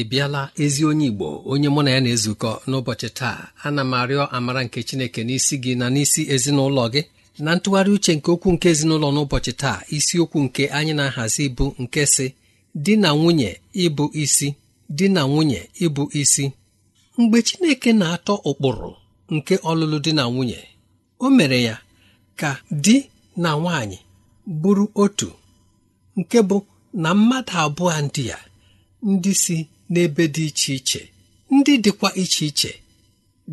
ị bịala ezi onye Igbo onye mụ na ya na-ezukọ n'ụbọchị taa ana m arịọ amara nke Chineke n'isi gị na n'isi ezinụlọ gị na ntụgharị uche nke okwu nke ezinụlọ n'ụbọchị taa isiokwu nke anyị na-ahazi bụ nke si di na nwunye ịbụ isi di na nwunye ịbụ isi mgbe Chineke na-atọ ụkpụrụ nke ọlụlụ di na nwunye o mere ya ka di na nwanyị bụrụ otu nke bụ na mmadụ abụọ ndị ya ndị si n'ebe dị iche iche ndị dịkwa iche iche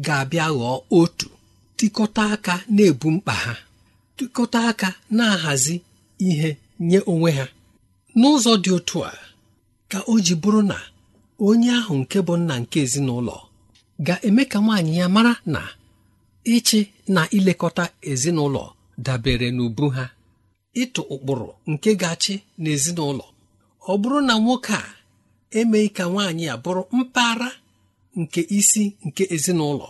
ga-abịa ghọọ otu tịkọta aka na-ebu mkpa ha tịkọta aka na-ahazi ihe nye onwe ha n'ụzọ dị otu a ka o ji bụrụ na onye ahụ nke bụ nna nke ezinụlọ ga-eme ka nwaanyị ya mara na ịchị na ilekọta ezinụlọ dabere n'ubu ha ịtụ ụkpụrụ nke ga-achị n'ezinụlọ ọ bụrụ na nwoke a emeghị ka nwaanyị a bụrụ mpaghara nke isi nke ezinụlọ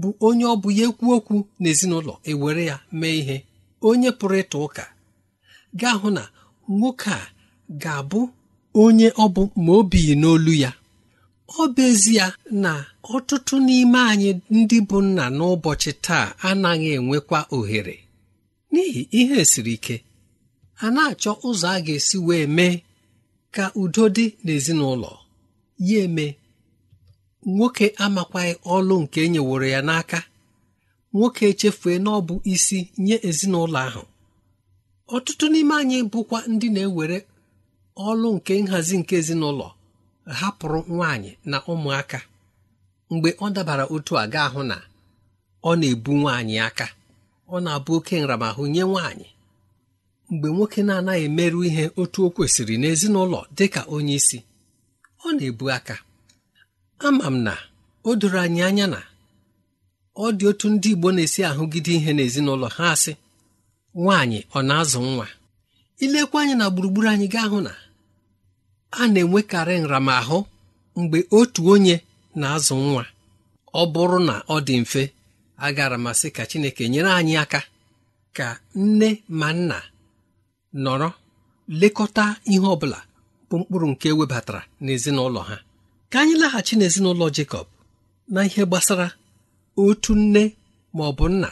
bụ onye ọ bụ ya ekwu okwu n'ezinụlọ ewere ya mee ihe onye pụrụ ịta ụka gaa hụ na nwoke a ga-abụ onye ọ bụ ma o n'olu ya ọ bụ ya na ọtụtụ n'ime anyị ndị bụ nna n'ụbọchị taa anaghị enwekwa ohere n'ihi ihe siri ike a na-achọ ụzọ a ga-esi wee mee ka udo dị n'ezinụlọ ya eme nwoke amakwaghị ọlụ nke e nyeworo ya n'aka nwoke echefue na ọ bụ isi nye ezinụlọ ahụ ọtụtụ n'ime anyị bụkwa ndị na-ewere ọlụ nke nhazi nke ezinụlọ hapụrụ nwanyị na ụmụaka mgbe ọ dabara otu aga ahụ na ọ na-ebu nwaanyị aka ọ na-abụ oke nramahụ nye nwaanyị mgbe nwoke na-anaghị emerụ ihe otu o kwesịrị n'ezinụlọ dị ka onye isi ọ na-ebu aka ama m na o doro anyị anya na ọ dị otu ndị Igbo na-esi ahụgide ihe n'ezinụlọ ha asị nwaanyị ọ na-azụ nwa ilekwa anyị na gburugburu anyị gaa hụ na a na-enwekarị nramahụ mgbe otu onye na-azụ nwa ọ bụrụ na ọ dị mfe agara masị ka Chineke nyere anyị aka ka nne ma nna nọrọ lekọta ihe ọ bụla bụ mkpụrụ nke ewebatara n'ezinụlọ ha ka anyị laghachi n'ezinụlọ Jekọb na ihe gbasara otu nne ma ọ bụ nna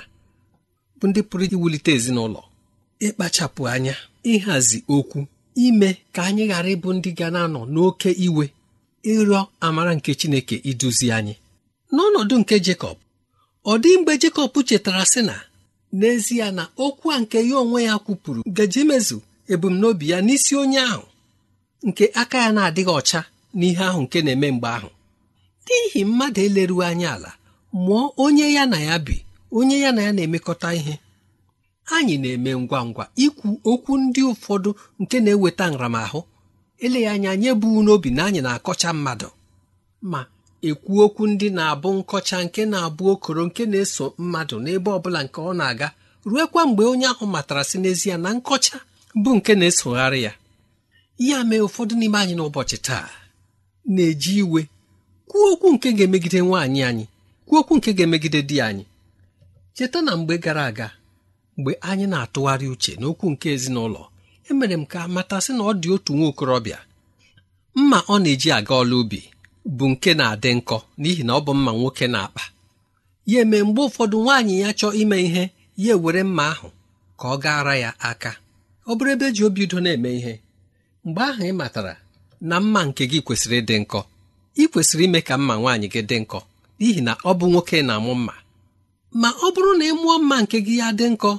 bụ ndị pụrụ iwulite ezinụlọ ịkpachapụ anya ịhazi okwu ime ka anyị ghara ịbụ ndị ga na-anọ n'oke iwe ịrịọ amara nke Chineke iduzi anyị n'ọnọdụ nke Jekọb ọ dị mgbe Jekọb chetara sị na n'ezie na okwu a nke ya onwe ya kwupụrụ gaji ebumnobi ya n'isi onye ahụ nke aka ya na-adịghị ọcha n'ihe ahụ nke na-eme mgbe ahụ n'ihi mmadụ eleruo anya ala mụọ onye ya na ya bi onye ya na ya na-emekọta ihe anyị na-eme ngwa ngwa ikwu okwu ndị ụfọdụ nke na-eweta nramahụ eleghị anya nye bụ n'obi na anyị na-akọcha mmadụ ma ekwu okwu ndị na-abụ nkọcha nke na-abụ okoro nke na-eso mmadụ n'ebe ọ bụla nke ọ na-aga ruekwa mgbe onye ahụ matara si n'ezie na nkọcha bụ nke na-esogharị ya ya mee ụfọdụ n'ime anyị n'ụbọchị taa na-eji iwe kwuo okwu nke ga-emegide nwaanyị anyị kwuo okwu nke ga-emegide di anyị cheta na mgbe gara aga mgbe anyị na-atụgharị uche n'okwu nke ezinụlọ emere m ka matasị na ọ dị otu nwa okorobịa mma ọ na-eji aga ọla ubi bụ nke na-adị nkọ n'ihi na ọ bụ mma nwoke na-akpa ya eme mgbe ụfọdụ nwaanyị ya chọọ ime ihe ya ewere mma ahụ ka ọ gaara ya aka ọ bụrụ ebe ji obi udo na-eme ihe mgbe ahụ ị matara na mma nke gị kwesịrị ịdị nkọ ị kwesịrị ime ka mma nwaanyị gị dị nkọ n'ihi na ọ bụ nwoke na-amụ mma ma ọ bụrụ na ị mụọ mma nke gị ya dị nkọ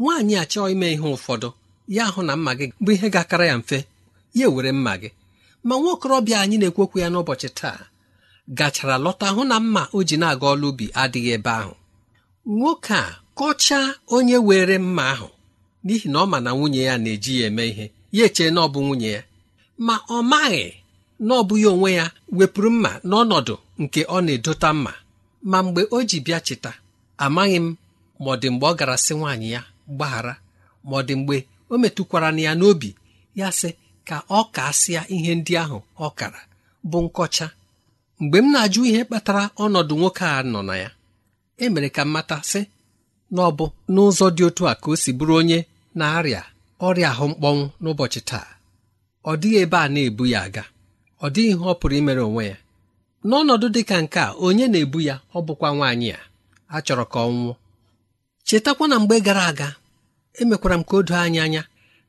nwaanyị achọọ ime ihe ụfọdụ ya ahụ na mma gị bụ ihe ga-akara ya mfe ya ewere mma gị ma nwa okorobịa anyị na-ekwekwu ya n'ụbọchị taa gachara lọta hụ na mma o ji na-aga ọlụ ubi adịghị ebe ahụ nwoke a kọchaa onye were mma ahụ n'ihi na ọ ma na nwunye ya na-eji ya eme ihe ya echee na ọ bụ nwunye ya ma ọ maghị na ọ bụghị onwe ya wepụrụ mma n'ọnọdụ nke ọ na-edota mma ma mgbe o ji bịa cheta amaghị m ma ọ dị mgbe ọ gara sị nwaanyị ya gbaghara ma ọ dị mgbe o metụkwara ya n'obi ya sị ka ọ kasịa ihe ndị ahụ ọ kara bụ nkọcha mgbe m na-ajụ ihe kpatara ọnọdụ nwoke a nọ na ya emere ka m sị na ọ bụ n'ụzọ dị otu a ka o si bụrụ onye na-arịa ọrịa ahụ mkpọnwụ n'ụbọchị taa ọ dịghị ebe a na-ebu ya aga ọ dịghị ihe ọ pụrụ imere onwe ya n'ọnọdụ dị ka nke a onye na-ebu ya ọ bụkwa nwaanyị a a chọrọ ka ọ nwụọ chetakwa na mgbe gara aga emekwara m ka o doo anyị anya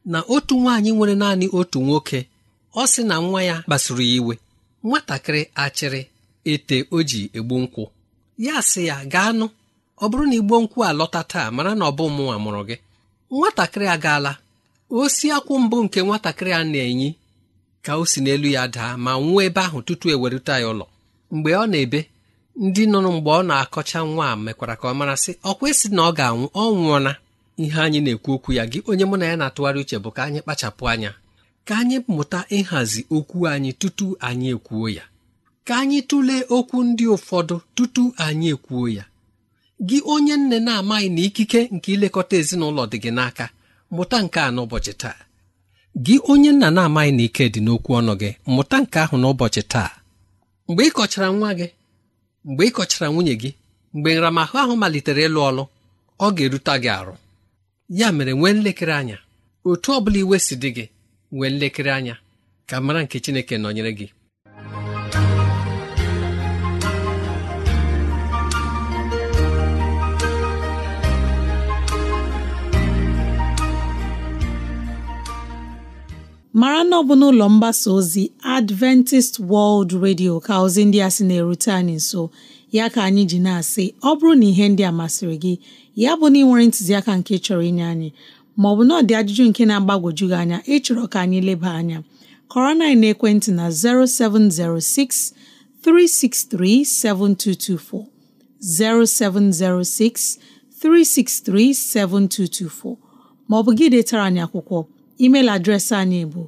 na otu nwaanyị nwere naanị otu nwoke ọ sị na nwa ya kpasuru ya iwe nwatakịrị achịrị ete o ji egbu nkwụ ya sị ya gaa nụ ọ bụrụ na igbo nkwụ alọta taa mara na ọ bụ mụnwa mụrụ gị nwatakịrị agaala osi akwụ mbụ nke nwatakịrị a na-enyi ka o si n'elu ya daa ma nwụọ ebe ahụ tutu ewerụta ya ụlọ mgbe ọ na-ebe ndị nọ mgbe ọ na-akọcha nwa a mekwara ka ọ mara sị ọ kwesị na ọ ga-anwụ ọ nwụọna ihe anyị na-ekwu okwu ya gị onye mụ na ya na-atụgharị uche bụ ka anyị kpachapụ anya ka anyị mụta ịhazi okwu anyị tutu anyị ekwuo ya ka anyị tụlee okwu ndị ụfọdụ tutu anyị ekwuo ya gị onye nne na-amaghị na ikike nke ilekọta ezinụlọ dị gị n'aka mụta nke a n'ụbọchị taa gị onye nna na-amaghị na ike dị n'okwu ọnụ gị mụta nke ahụ n'ụbọchị taa mgbe ị kọchara nwa gị mgbe ị kọchara nwunye gị mgbe nramahụ ahụ malitere ịlụ ọlụ ọ ga-eruta gị arụ ya mere nwee nlekere anya otu ọ bụla iwe si dị gị nwee nlekere anya ka mara nke Chineke nọnyere gị mara na ọ bụ n'ụlọ mgbasa ozi Adventist World Radio ka ozi ndị a sị na-erute anyị nso ya ka anyị ji na-asị ọ bụrụ na ihe ndị a masịrị gị ya bụ na ị nwere ntụziaka nke chọrọ inye anyị ma bụ na ọ dị ajụjụ nke na-agbagwoju gị anya ịchọrọ ka anyị leba anya kọrọ na ekwentị na 0706 363 7224 0706 363 7224 maọbụ gị detara anyị akwụkwọ email adreesị anyị bụ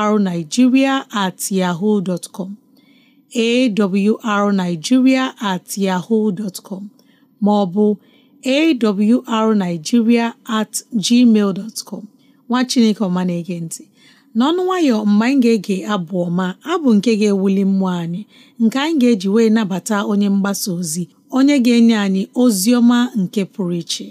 awrnigeria at yahoo com at yahoo com ma ọ bụ awrnigeria at gmail dot com nwa chineke ọma na-ege ntị n'ọnụ nwayọ mgbe anyị ga-ege abụ ọma abụ nke ga-ewuli mmụọ anyị nke anyị ga-eji wee nabata onye mgbasa ozi onye ga-enye anyị ozi ọma nke pụrụ iche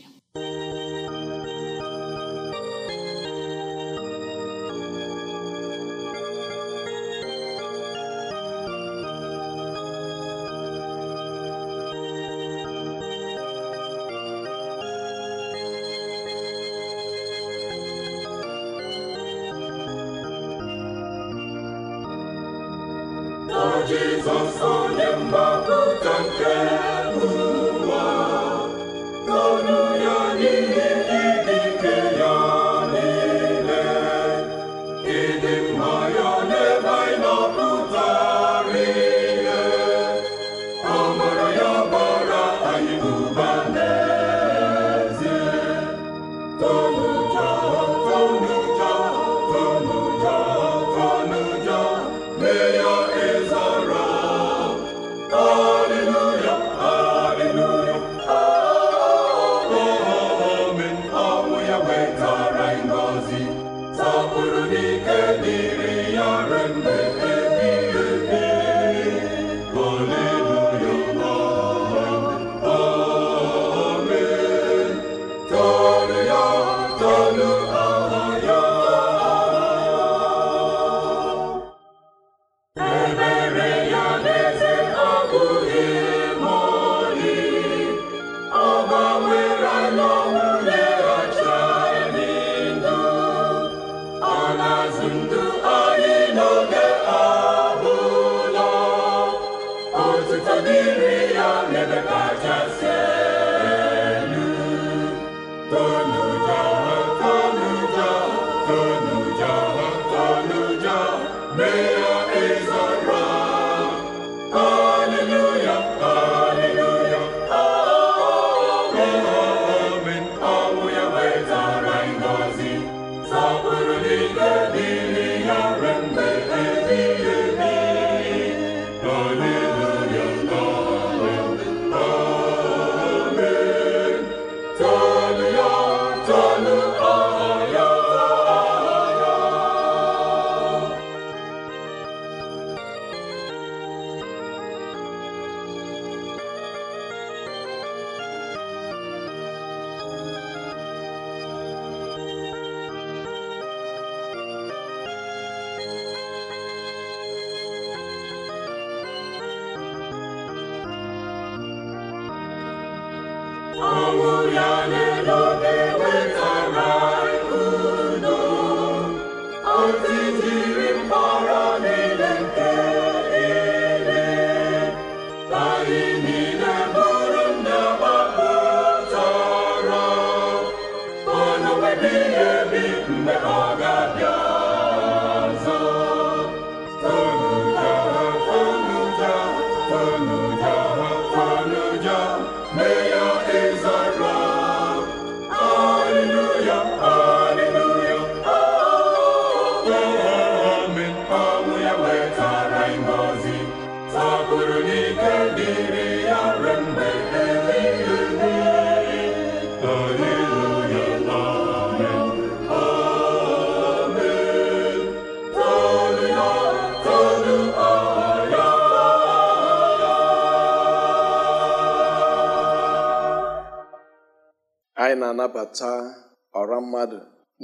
na-abata ọra mmadụ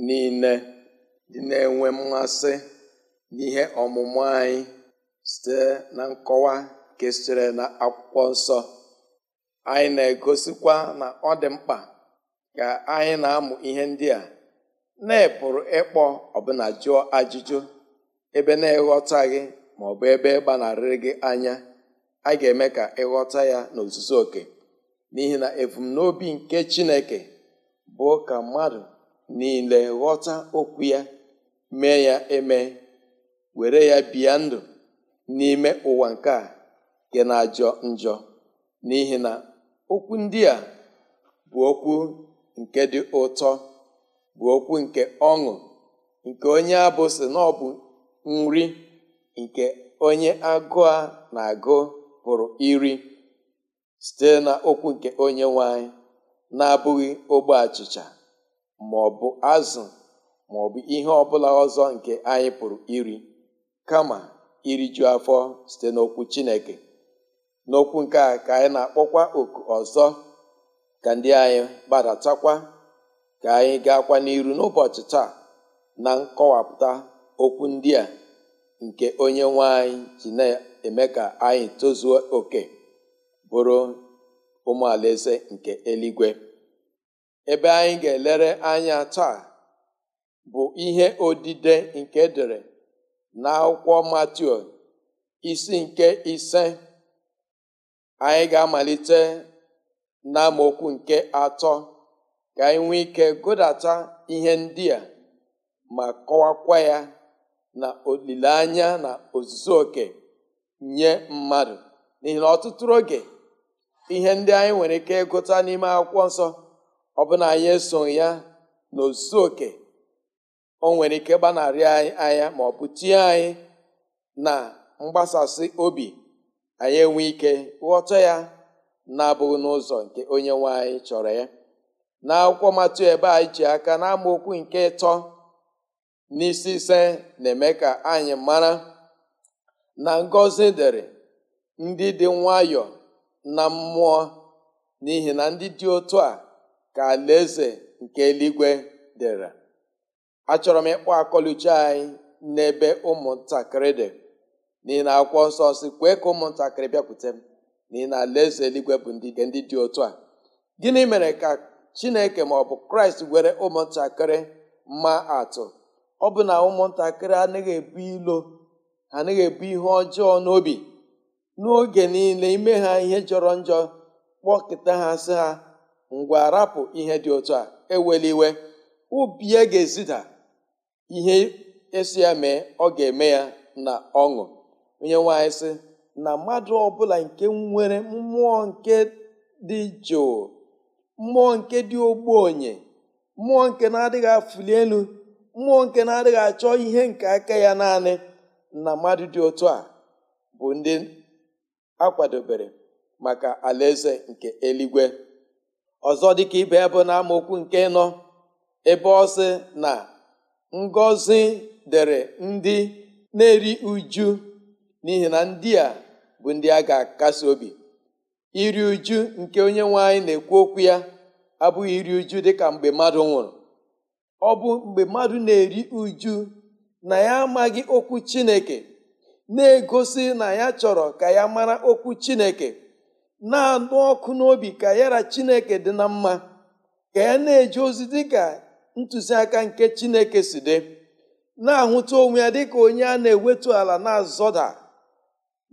niile dị na-enwe mmasị n'ihe ọmụmụ anyị site na nkọwa nke sitere na akwụkwọ nsọ anyị na-egosikwa na ọ dị mkpa ka anyị na-amụ ihe ndị a na-epụrụ ịkpọ ọbụna jụọ ajụjụ ebe na gị ma ọ bụ ebe gbanarịrị gị anya a ga-eme ka ịghọta ya n'ozuzu oke n'ihi na ebumnobi nke Chineke bụ ka mmadụ niile ghọta okwu ya mee ya eme were ya bịa ndụ n'ime ụwa nke a nke na-ajọ njọ n'ihi na okwu ndị a bụ okwu nke dị ụtọ bụ okwu nke ọṅụ nke onye abụ sị na ọ bụ nri nke onye agụ a na-agụ pụrụ iri site na okwu nke onye nwanyị. na-abụghị ogbe achịcha ma ọ bụ azụ ma ọ bụ ihe ọbụla ọzọ nke anyị pụrụ iri kama iri iriju afọ site n'okwu Chineke n'okwu nke a ka anyị na-akpọkwa oku ọzọ ka ndị anyị gbadatakwa ka anyị gaakwa n'iru n'ụbọchị taa na nkọwapụta okwu ndị a nke onye nwe anyị ji na-eme ka anyị tozuo oke bụrụ ụmụ alaeze nke eluigwe ebe anyị ga-elere anya taa bụ ihe odide nke dere n'akwụkwọ Matiu isi nke ise anyị ga-amalite n'amaokwu nke atọ ka anyị nwee ike gụdata ihe ndị a ma kọwakwa ya na olileanya na ozuzo oke nye mmadụ n'ihi na ọtụtụ oge ihe ndị anyị nwere ike ịgụta n'ime akwụkwọ nsọ ọ bụla anyị esoghị ya na oke o nwere ike gbanarị anyị anya ma ọ bụ tie anyị na mgbasasị obi anyị enwe ike ghọta ya na-abụghị n'ụzọ nke onye nwe anyị chọrọ ya na akwụkwọ matụ ebe anyị ji aka na amaokwu nke ịtọ n'isi ise na-eme ka anyị mara na ngozi dịrị ndị dị nwayọọ na mmụọ n'ihi na ndị dị otu a ka alaeze nke eluigwe dịrị achọrọ m ịkpọ akọluche anyị n'ebe ụmụntakịrị dị n'ihi na akwụkwọ nsọ si kwee ka ụmụntakịrị bịakwute m n'ihi na alaeze eluigwe bụ ndị ndị dị otu a gịnị mere ka chineke ma ọ bụ kraịst were ụmụntakịrị ma atụ ọ bụ na ụmụntakịrị anaghị ebu ilo anaghị ebu ihe ọjọọ n'obi n'oge niile ime ha ihe jọrọ njọ kpọkịta ha sị ha ngwa rapụ ihe dị otu a eweliwe ubi ya ga-ezida ihe esi ya mee ọ ga-eme ya na ọṅụ onye nwanyị sị na mmadụ ọbụla nke nwere mmụọ nke dị jụụ mmụọ nke dị ogbenye mmụọ nke na-adịghị afụli elu mmụọ nke na-adịghị achọ ihe nke aka ya naanị na mmadụ dị otu a bụ ndị a kwadebere maka alaeze nke eluigwe ọzọ dịka ibe bụ na amaokwu nke nọ ebe ọ na ngọzi dere ndị na-eri uju n'ihi na ndị a bụ ndị a ga-akasi obi iri uju nke onye nwanyị na-ekwu okwu ya abụghị iri uju dịka mgbe mmadụ nwụrụ ọ bụ mgbe mmadụ na-eri uju na ya amaghị okwu Chineke na-egosi na ya chọrọ ka ya mara okwu chineke na-anụ ọkụ n'obi ka yara chineke dị na mma ka ya na eji ozi dị ka ntụziaka nke chineke si dị na-ahụta onwe ya dịka onye a na-ewetu ala na-azọda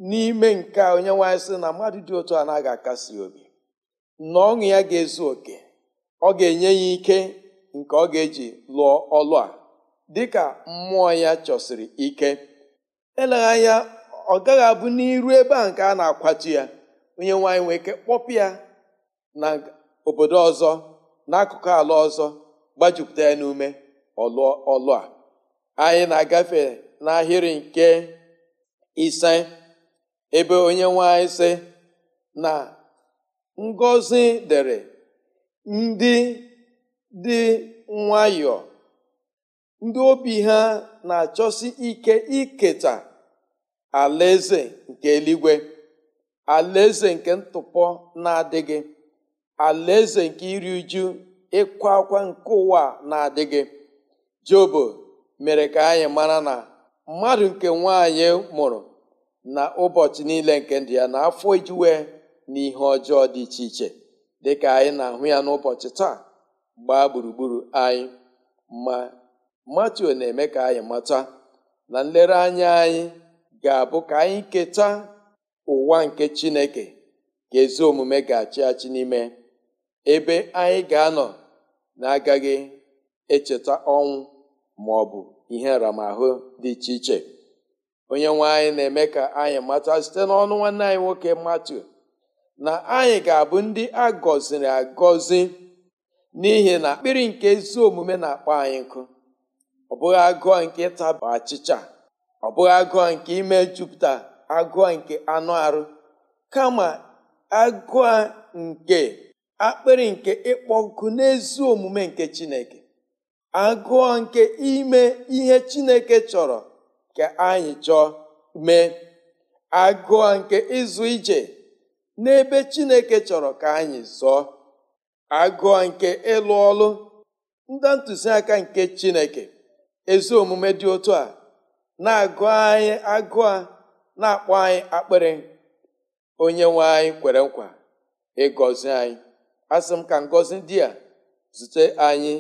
n'ime nke onye nwanyị sị na mmadụ dị otu a akasi obi na ọṅụ ya ga-ezu oke ọ ga-enye ya ike nke ọ ga-eji lụọ ọlụ a dịka mmụọ ya chọsiri ike eleghị anya ọ gaghị abụ n'iru ebe a nke a na-akwatu ya onye nwanyị nwee ike kpọpụ ya na obodo ọzọ n'akụkụ ala ọzọ gbajupụta ya n'ume ọlụ a anyị na-agafe n'ahịrị nke ise ebe onye nwanyị sị na ngọzi dere ndị dị nwayọọ ndị obi ha na-achọsi ike iketa alaeze nke eluigwe alaeze nke ntụpọ na-adịghị alaeze nke iri uju ịkwa akwa nke ụwa na-adịghị jobo mere ka anyị mara na mmadụ nke nwaanyị mụrụ na ụbọchị niile nke ndị ya na afọ ijuwe na ihe ọjọọ dị iche iche dịka anyị na-ahụ ya n'ụbọchị taa gbaa gburugburu anyị ma matio na-eme ka anyị mata na nlereanya anyị ga-abụ ka anyị keta ụwa nke chineke ka ezi omume ga-achị achị n'ime ebe anyị ga-anọ na-agaghị echeta ọnwụ ma ọ bụ ihe nramahụ dị iche iche onye nwe anyị na-eme ka anyị mata site n'ọnụ nwanne anyị nwoke matu na anyị ga-abụ ndị a gọziri agọzi n'ihi na akpịrị nke ezi omume na-akpọ anyị nkụ ọ bụghị agụọ nke ịta achịcha ọ bụghị agụọ nke ime jupụta agụụ nke anụ arụ kama agụọ nke akpịrị nke ịkpọ ọkụ n'ezi omume nke chineke agụọ nke ime ihe chineke chọrọ ka anyị chọọ mee agụọ nke ịzụ ije n'ebe chineke chọrọ ka anyị zọọ agụọ nke ịlụ ọlụ ndị ntụziaka nke chineke ezi omume dị otu a na-agụ anyị agụ a na-akpọ anyị akpịrị onye nwe anyị kwere nkwa ịgọzi anyị asị m ka ngọzi ndị a zute anyị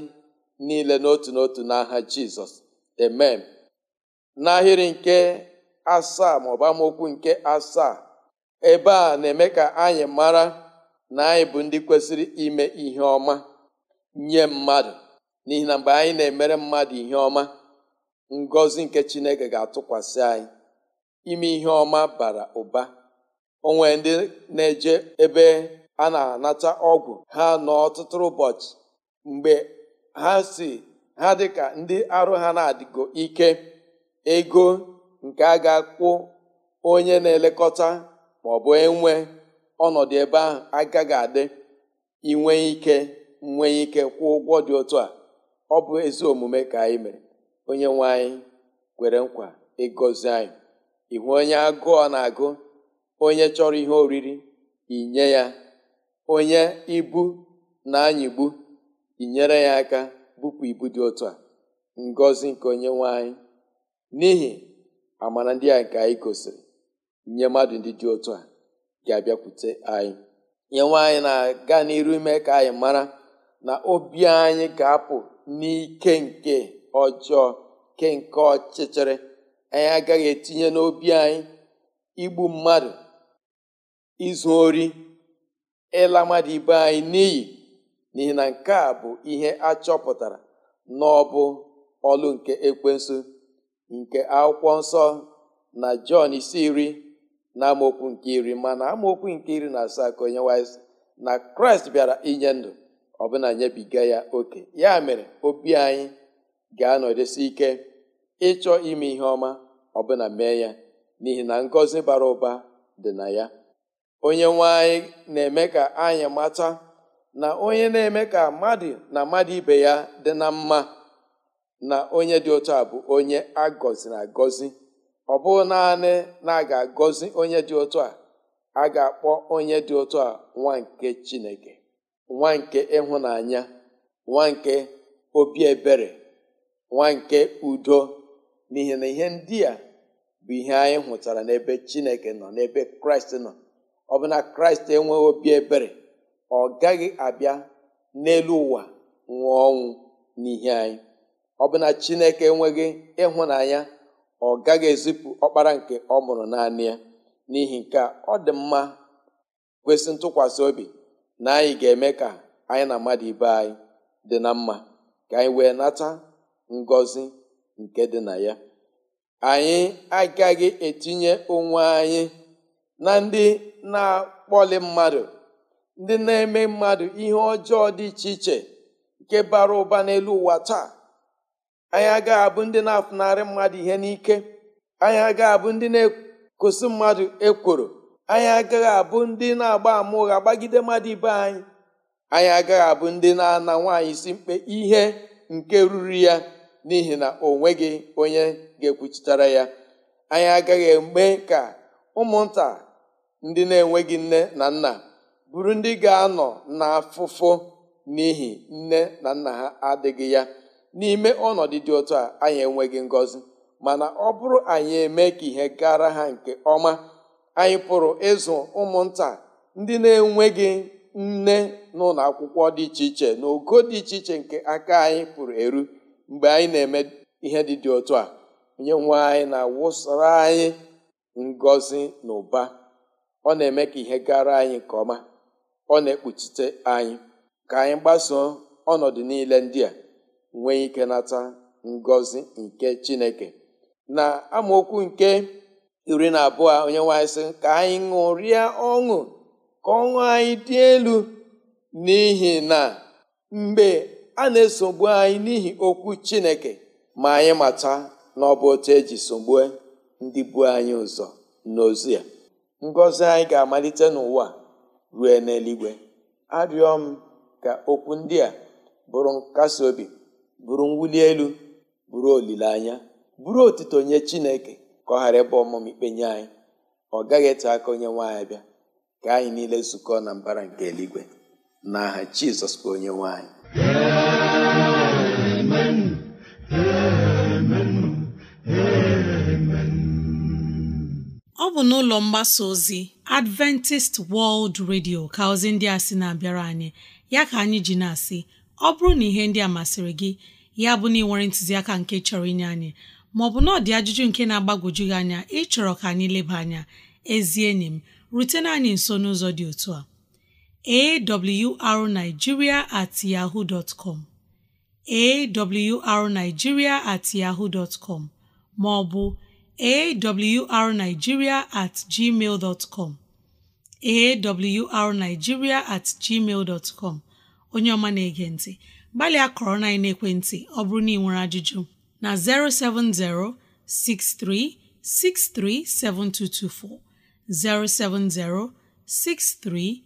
niile n'otu n'otu n'aha jizọs amen n'ahịrị nke asaa ma bụ amaokwu nke asaa ebe a na-eme ka anyị mara na anyị bụ ndị kwesịrị ime ihe ọma nye mmadụ n'ihi na mgbe anyị na-emere mmadụ ihe ọma ngozi nke chineke ga-atụkwasị anyị ime ihe ọma bara ụba onwe ndị na-eje ebe a na-anata ọgwụ ha nọ ụbọchị mgbe ha si ha dịka ndị arụ ha na-adịgo ike ego nke a ga-akwụ onye na-elekọta ma ọ bụ enwe ọnọdụ ebe ahụ agaghị adị inwe ike nwee ike kwụọ ụgwọ dị otu a ọ bụ ezi omume ka anyị mere onye nwe anyị kwere nkwa ịgọzi anyị ịhụ onye agụọ na-agụ onye chọrọ ihe oriri inye ya onye ibu na-anyịgbu inyere ya aka bupụ ibu dị otu a ngozi nke onye nwe anyị n'ihi amara ndị a nke anyị gosiri nye mmadụ ndị dị otu a ga-abịakwute anyị nye anyị na-aga n'iru ime ka anyị mara na obi anyị ga-apụ n'ike nke ọjọọ ke nke ọchịchịrị anyị agaghị etinye n'obi anyị igbu mmadụ izu ori ịla mmadụ ibe anyị n'iyi n'ihi na nke a bụ ihe achọpụtara n'ọbụ ọlụ nke ekwensu nke akwụkwọ nsọ na jọn isi iri na amaokwu nke iri mana amaokwu nke iri na asaa ka onye wise na kraịst bịara inye ndụ ọbụna nyebiga ya oke ya mere obi anyị ga-anọdesi ike ịchọ ime ihe ọma ọbụna mee ya n'ihi na ngọzi bara ụba dị na ya onye nwanyị na-eme ka anyị mata na onye na-eme ka mmadụ na mmadụ ibe ya dị na mma na onye dị ụtọ a bụ onye agọziri agọzi ọ bụ naanị na a ga-agọzi onye dị ụtọ a a ga-akpọ onye dị ụtọ a nwa nke Chineke nwa nke ịhụnanya nwa nke obi ebere nwa nke udo n'ihi na ihe ndị a bụ ihe anyị hụtara n'ebe chineke nọ n'ebe kraịst nọ ọ bụ na kraịst enweghị obi ebere ọ gaghị abịa n'elu ụwa nwụọ ọnwụ n'ihe anyị ọ bụ na chineke enweghị ịhụnanya ọ gaghị ezipụ ọkpara nke ọ mụrụ naanị ya n'ihi nke ọ dị mma kwesị ntụkwasị obi na anyị ga-eme ka anyị na mmadụ ibe anyị dị na mma ka anyị wee nata ngọzi nke dị na ya anyị agaghị etinye onwe anyị na ndị na-akpọli mmadụ ndị na-eme mmadụ ihe ọjọọ dị iche iche nke bara ụba n'elu ụwa taa anyị agaghị abụ ndị na-afụnarị mmadụ ihe n'ike anyị agaghị abụ ndị na-ekụsị mmadụ ekworo anyị agaghị abụ ndị na-agba ama ụgha gbagide mmadụ ibe anyị anyị agaghị abụ ndị na-ana nwaanyị si mkpe ihe nke ruru ya n'ihi na o nweghị onye ga-ekwuchitara ya anyị agaghị eme ka ụmụnta ndị na-enweghị nne na nna bụrụ ndị ga-anọ n'afụfụ n'ihi nne na nna ha adịghị ya n'ime ọnọdụ dị otu a anyị enweghị ngọzi mana ọ bụrụ anyị eme ka ihe gara ha nke ọma anyị pụrụ ịzụ ụmụnta ndị na-enweghị nne n'ụlọ akwụkwọ dị iche iche na ogo dị iche iche nke aka anyị pụrụ eru mgbe anyị na-eme ihe dị dị otu a onye nwe anyị na-awụsara anyị ngozi na ụba ọ na-eme ka ihe gara anyị nke ọma ọ na-ekpuchite anyị ka anyị gbasoo ọnọdụ niile ndị a nwee ike nata ngozi nke chineke na amaokwu nke iri na abụọ onye nwanyị sị ka anyị ṅụrịa ọṅụ ka ọṅụ anyị dị elu n'ihi na mgbe a na-esogbu anyị n'ihi okwu chineke ma anyị mata na ọ bụ otu eji sogbue ndị bu anyị ụzọ n'ozu ya ngọzi anyị ga-amalite n'ụwa rue n'eluigwe arịọ m ka okwu ndị a bụrụ nkasi obi bụrụ mwuli elu bụrụ olileanya bụrụ otuto nye chineke ka ọ ghara ịbụ ọmụmụ ikpe nye anyị ọ gaghị ete aka onye nwaanyị bịa ka anyị niile zukọọ na mbara nke eluigwe n'aha jizọs bụ onye nwaanyị ọ bụ n'ụlọ mgbasa ozi Adventist World Radio ka ozi ndị a sị na-abịara anyị ya ka anyị ji na-asị ọ bụrụ na ihe ndị a masịrị gị ya bụ na ịnwere ntụziaka nke chọrọ inye anyị maọbụ na ọdị ajụjụ nke na-agbagwoju gị anya ịchọrọ ka anyị leba anya ezi enyi m rutena anyị nso n'ụzọ dị otu a awrunigeria@yahoo.com at yahoo dot com at ma ọ bụ at gmail at gmail onye ọma na-ege ntị gbalịa kọrọ na ekwentị ọ bụrụ na ị nwere ajụjụ na 070 6363 7224 070 63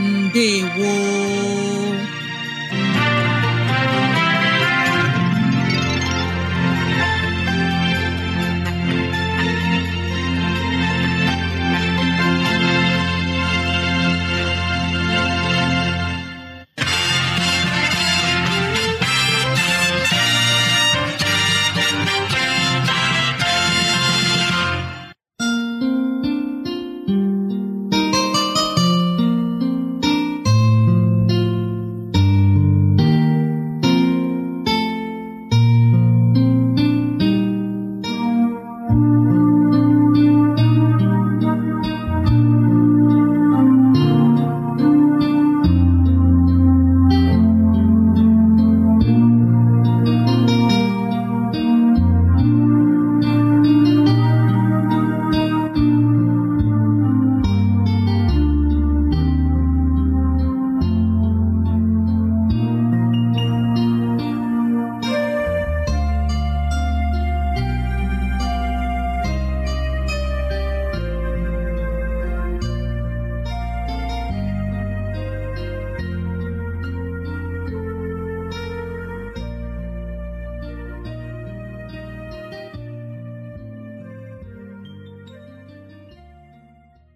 ndewo